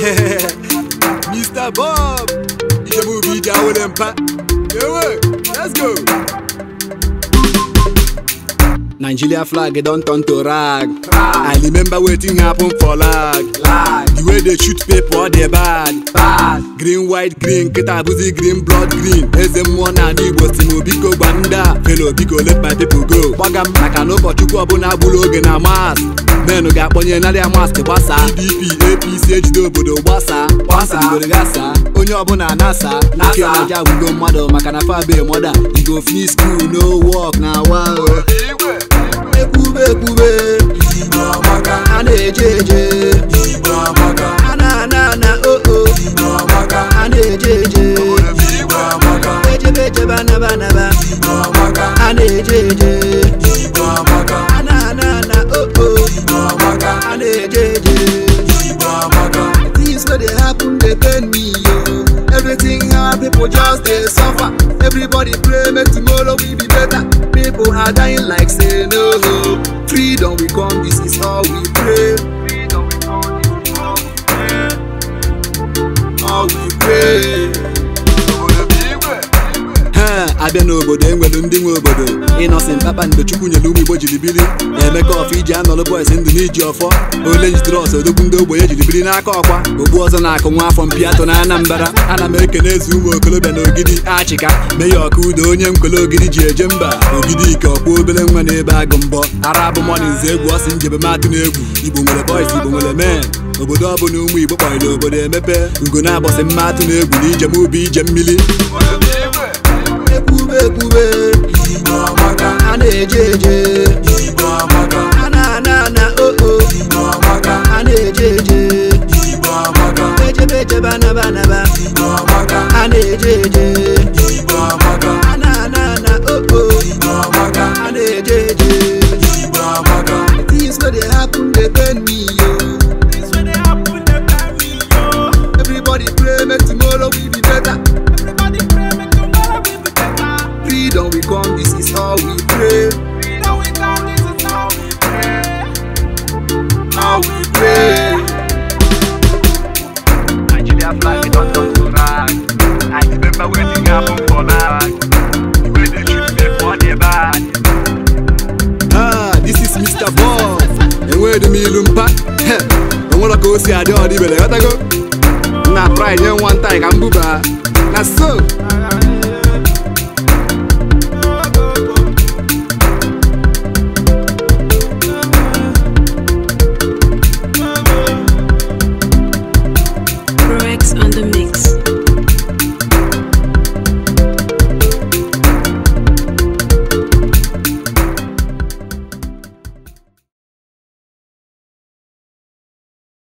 Mr. Bob, je vous vis dans l'impa. Eh let's go. Nigeria flag don't turn to rag. rag. I remember waiting happen for lag. lag. The way they shoot people, they bad. bad. Green, white, green, ketabuzi, green, blood, green. Eze mmụọ na ala Igbo biko n'obi ko Felo biko let my people go. Gbaga m maka na ụbọchukwu ọbụla agbụrụ oge na mas. Menụ ga-akpọnye narị mask gbasa. PDP, si ejide obodo gbasaa gbasa gasa onye ọbụla nasa nwoke ọja gwugo mmadụ maka na fabe mọda igo fi skul no wọk na wa ekwube ekwube a na-eje eje a na-ana na oo a na-eje eje happen dey pain me o. Everything hard, people just they suffer. Everybody pray make tomorrow we be better. People are dying like say no. abịa n'obodo enwelu ndị nwe obodo ịnọsin papa chukwu nyere ụmụ igbo jiri biri emeka ọfọ iji anọlụ bọis ndụ n'iji ọfọ ole jidere ọsọ odogwu ndị ogbenye jiri biri n'aka ọkwa ogbu ọzọ na-akụ nwa afọ mpiato na anambara ana m eze ụmụ okolobịa na ogidi achịka mee ọka udo onye nkwele ogidi ji eje mba ogidi ike ọkwa obere nwa n'ebe agụ mbọ ara bụ mọnins egwu ọsị njebemadụ na egwu igbo nwere bọis igbo nwere mee obodo ọbụla ụmụ igbo kpọrọ obodo emepe ugo na mmadụ na egwu na ijem ubi ije mmiri ekpube anejeje ananana oo oh, oh. anejeje ejebejebanabanaba anejeje me ah, this is Mr. Bond. And where the me lumpa? And what go see, I do all the belly. What I go? Now, pride, you one time, I'm booba. Now, so.